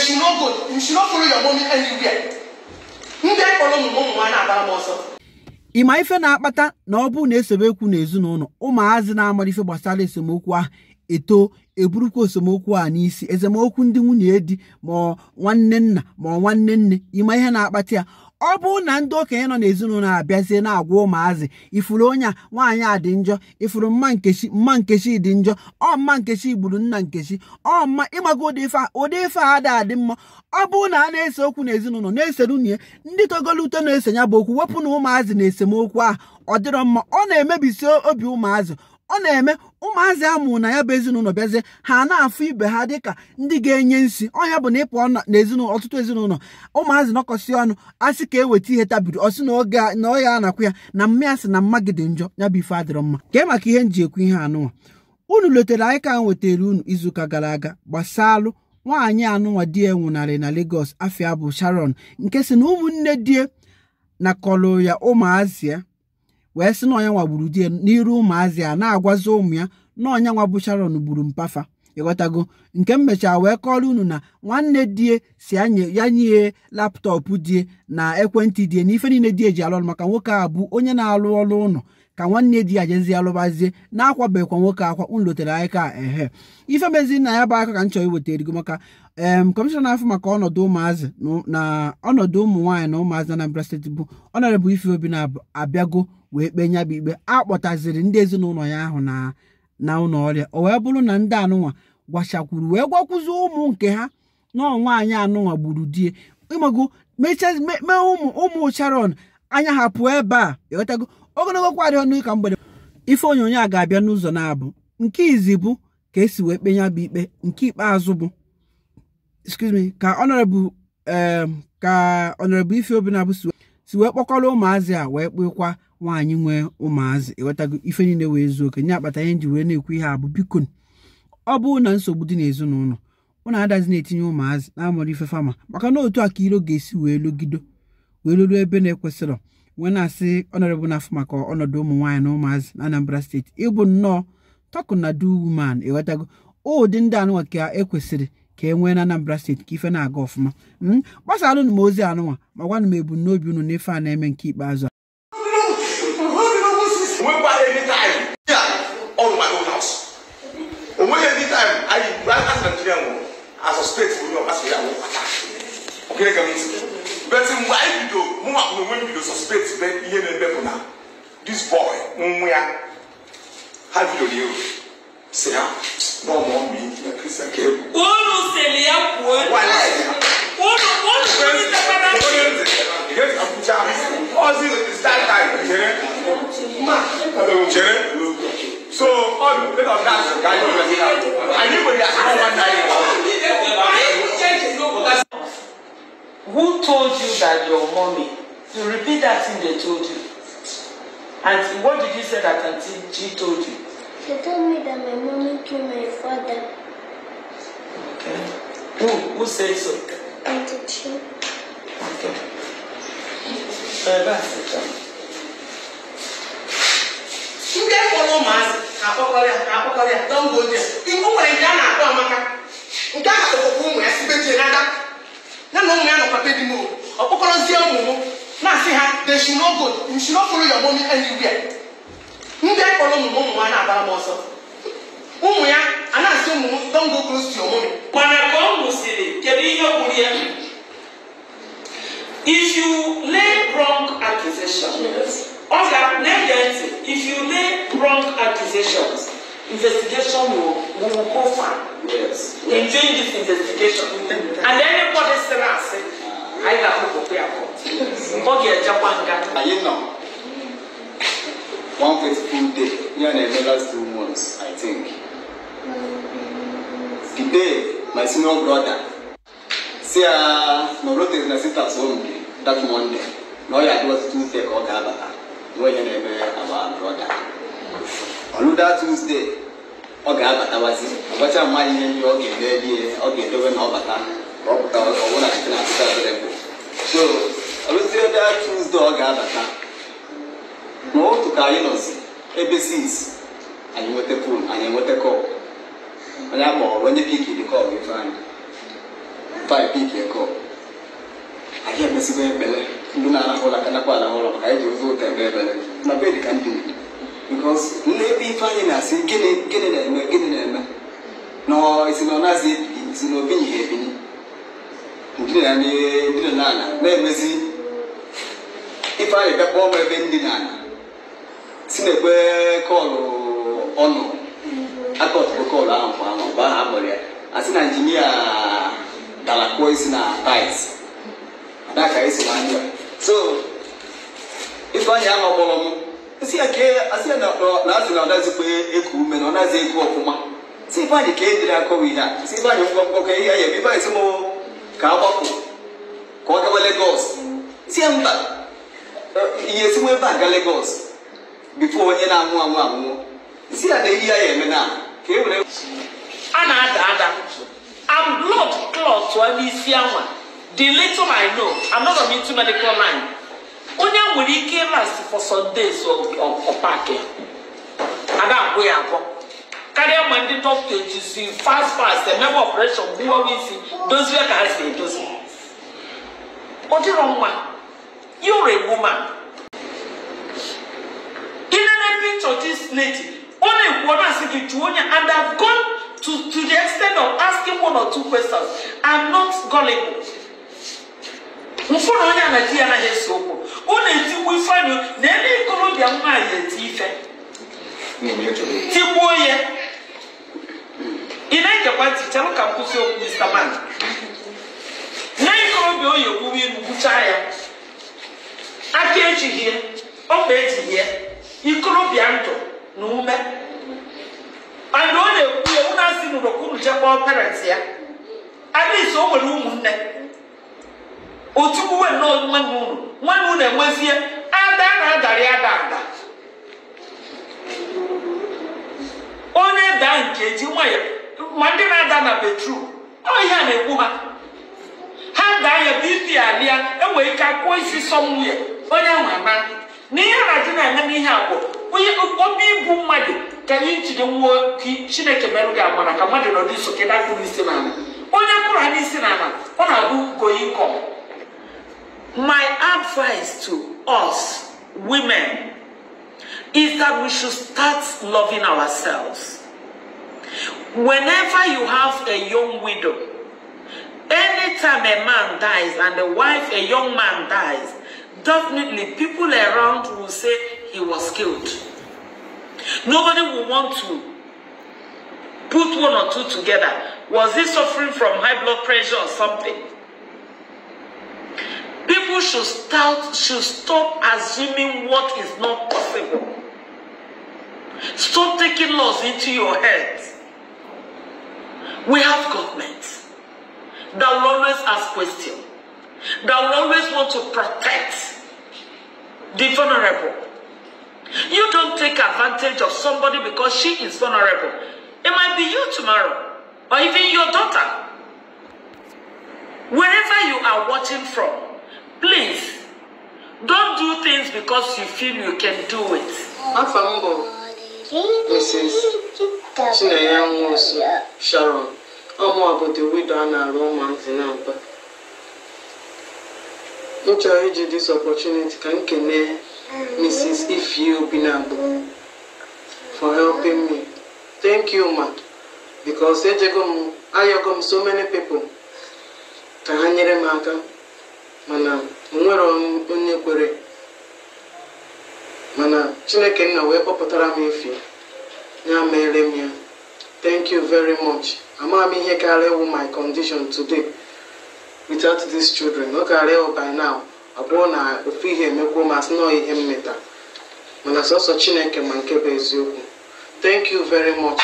you should not go you should not follow your mommy anywhere ndị kpọrọ ụmụ ụmụ nwaanyị na-agbara m ọsọ ịma ife na-akpata na ọ bụrụ na esemokwu n'ezinụlọ ụmụazị na-amara ife gbasara esemokwu ahụ eto eburukwa esemokwu a n'isi esemokwu ndị nwunye di ma ọ nwanne nna ma ọ nwanne nne ịma ihe na-akpata ya ọ bụrụ na ndị okenye nọ n'ezinụlọ abịazie na-agwa ụmụazị ifuru onye a nwaanyị a dị njọ ifuru mma nkechi mma nkechi dị njọ ọ mma nkechi gburu nna nkechi ọ mma ịmaga ụdị ife ụdị ife a dị adị mma ọ bụrụ na a na-ese okwu n'ezinụlọ na-esere unye ndị togolu na-ese ya bụ okwu wepụ na ụmụazị na esemokwu ahụ ọ dịrọ mma ọ na-emebisi obi ụmụazị ọ na-eme ụmụazị amụ na ya bụ ezinụlọ bịazie ha na-afụ ibe ha dịka ndị ga-enye nsi ọnya bụ na ịpụ n'ezinụlọ ọtụtụ ezinụlọ ụmụazị nọkọsị ọnụ asị ka eweta ihe tabiri ọsị na oge na ọ ya anakwụ ya na mmịa sị na mma gị dị njọ ya bụ ife adịrọ mma kee maka ihe nji ekwu ihe anụnwa unu letara anyị ka nwetara unu izuụka gara aga gbasalụ nwaanyị anụnwa di e nwụnarị na Lagos afia bụ Sharon nke si na ụmụnne di na kọlụ ya ụmụazị ya wee si na ọnya gburu di n'iru ụmụazị a na-agwazi ụmụ ya na ọnya bụ sharon gburu mpafa ịghọtago nke m mechaa wee kọrọ unu na nwanne die si ya nye laptọpụ die na ekwentị die na ife niile die ji alụ ọrụ maka nwoke a bụ onye na-alụ ọrụ ụlọ ka nwanne di ya jezi alụbazie na-akwabekwa nwoke akwa unu lotere anyị ka ehe ife mezi na ya bụ aka ka m chọrọ iweta erigo maka em na afọ maka ọnọdụ ụmụazị na ọnọdụ ụmụ nwaanyị na ụmụazị na Anambra steeti bụ ọnọdụ Ife Obi na-abịago wee kpee nyabụ ikpe akpọtaziri ndị ezinụlọ ya ahụ na na ụlọ ọrịa o wee bụrụ na ndị anụnwa gwachakwuru wee gwakwuzi ụmụ nke ha na nwaanyị anụnwa gburu die ịmago mee ụmụ ụmụ anya ha pụọ ebe a ịghọtago e ogologo kwa ọnụ mgbede ife onyonyo a ga-abịa n'ụzọ na-abụ nke izi bụ ka esi wee kpe bụ ikpe nke ikpeazụ bụ ka me ka honorable ka honorable ife si wee kpọkọrọ ụmụazị a wee kpekwa nwaanyị nwee ụmụazị ewetago ife niile wee zuo oke nye akpata ihe nji wee na-ekwu ihe a bụ bikon ọ bụrụ na nsogbu dị n'ezinụlọ ụnụ adazi na-etinye ụmụazị na-amụrụ ife fama maka na otu a ka iro ga-esi wee logido wee ruru ebe na ekwesịrị wee na-asị ọnọrọbụ n'afọ maka ọnọdụ ụmụ nwaanyị na ụmụazị na Anambra steeti ịbụ nnọọ tọkụ na du wuman ụdị ndị anụnwa ka ekwesịrị ka e nwee na Anambra steeti ka ife na-aga ọfụma hmm? gbasara m ozi anụnwa ma gwanụ m ebumnobi unu n'ife a na-eme nke ikpeazụ a na onwe m bido suspect be ihe na-eme bụ na this boy nwa was the bidoro ya si ha na ọmụ ọmụ ihe kristian ka egwu unu sịrị ya kwuo unu unu sịrị ya abuja ọzọ start time chere chere so ọ bụ Who? of gas ka anyị nwere anyị nwere ahụ nwanne anyị Who told you that your mommy To repeat that thing they told you. And what did you say that Auntie G told you? She told me that my mommy killed my father. Okay. Who who said so? Auntie G. Okay. Uh, that's it. Ndị fọrọ ụmụazị akpọkọrịa akpọkọrịa dọmbo ndị a. Iwu nwere nke a na-akpọ amaka. Nke a ọkpọkọ ụmụ ya sibe jie n'aka. Ya na ụmụ ya nọkwa be di m okpokọrọzie ụmụ m na si ha they should not go you should not follow your mommy anywhere ndị kpọrọ ụmụ ụmụ ha na-abara m ọsọ ụmụ ya a na-asị ụmụ m don go close to your mommy. mana ka ọ nwụsịrị kedu ihe gwuru ya if you lay wrong accusations, ọ ga na-ege ntị if you lay wrong accusations investigation will will go far yes. in doing this investigation and anybody sịrị asị. anyị ga-akpụpụkwa ya ọ ga-ejekwa nga anyị nọ one faithful day ya na-eme last two months i think the day my senior brother si ya na rotes na sisters home gị that monday na ọ ya adị ọtụtụ tuesday ka ọ ga-abata na onye na-eme our brother that tuesday ọ ga-abatawazi ọgbacha mmadụ ihe ndị ọ ga-edewe na ọ bata ọpụta ọbụna nke na-abịa so ọrụzi ebe a ọ ga-abata ma otu ka anyị nọzi ebe sins anyị nweta fon anyị enweta kọp onye akpọrọ onye piki dị kọp ife anyị faị piki kọp anyị emesigo ekpele ndị na-arahụ ụra ka nakwa maka anyị ji ụzọ ụtọ ebe ebere na bed ka ndị bikos ebe ife anyị na-asị gịnị na-eme gịnị na-eme na ọ na esi na ndina ne ndina nana na emezi ife anyị bịakpọ m ebe ndina na si na ekwe kọlụ ọnụ akọtụrụ kọlụ ahụ kwa ahụ mgbe ahụ akpọrọ ya asị na injinia dara kụọ isi na tait adaka esi na ndụ so ife anyị ahụ kpọrọ m esi ya kee asị ya na asị na ọ dazikwa eku ume na ọ nazi eku ọfụma si ife anyị ka e dịrị akọwa ihe a si ife anyị ngwọngwọ ka ihe ya ebe ife anyị si mụ ka agbapụ ka ọ gawa Lagos tie mba ihe esinwa ebe a ga Lagos bifo onye na-anwụ anwụ anwụ si ya na ehi ya eme na ka e were a na-ada ada am blood clot n'isi anwa the little I know I'm not into medical line onye nwere ike last for some days ọ paaki a agwụ ya agwọ karịa ma ndị dọkịta ejisi fast fast The member of emebe we see isi dozie ka ha si What ọ wrong, man? you're a woman In inene picture this lady only one has ọ na-asị and I've gone to to the extent of asking one or two questions I'm not gullible mfụrụ onye anaghị ya anaghị ese okwu ọ na-etikwu ifeanyụ na ebe ikorobịa nwaanyị eti ife tigbuo ya ị na-egekwa ntị chelụ ka m kwụsị okwu Mr. Man nne ikorobịa oyi ogbugbu ilu gbuchaa ya aka ejighị ọkpa ejighị ya ikorobịa ndụ na ume mana ọ na-ekwu ya ụlọ asị n'ụlọ ka unu jee kpọọ ya adịghị o nwere ụmụnne otukwuwe nnọọ nwanne unu nwanne unu enwezie ada na-adarị ada ada onye daa nke ji nwayọọ ma ndị na-ada na betrum ọ ihe a na-ekwu ha ha ga-anya bp alịa enwere ike akwụọ isi sọmwuye onye ahụ ama na ihe na-adị na-eme n'ihe abụọ onye obi ibu mmadụ ka anyị njide nwụọ chineke merụ gị agbara ka mmadụ nọdụ n'iso ka dakpụrụ isi n'ala onye kpụrụ isi n'ala ọ na-abụ going com my advice to us women is that we should start loving ourselves. Whenever you have a young widow, anytime a man dies and a wife, a young man dies, definitely people around will say he was killed. Nobody will want to put one or two together. Was he suffering from high blood pressure or something? People should start should stop assuming what is not possible. Stop taking laws into your heads. We have governments that will always ask questions, that will always want to protect the vulnerable. You don't take advantage of somebody because she is vulnerable. It might be you tomorrow, or even your daughter. Wherever you are watching from, please don't do things because you feel you can do it. That's a Mrs. Chinenye Nwosu Sharon ọmụa bụ the widow a na-arụ ụmụazị na mba m chọrọ iji dis opportunity ka m kene Mrs. na Obinagbo for helping me thank you ma because ejego m ayọgo m so many people ka ha nyere m aka mana m nwere onye kwere chineke nna wee kpọpụtara m efi ya mere m ya thank you very much amaghị m ihe karịa ịwụ my condition today without these children ọ karịa ịwụ by now abụọ na ofu ihe emekwuo ma sị nọọ ihe mmeta, mana sọsọ chineke ma nke bụ eziokwu thank you very much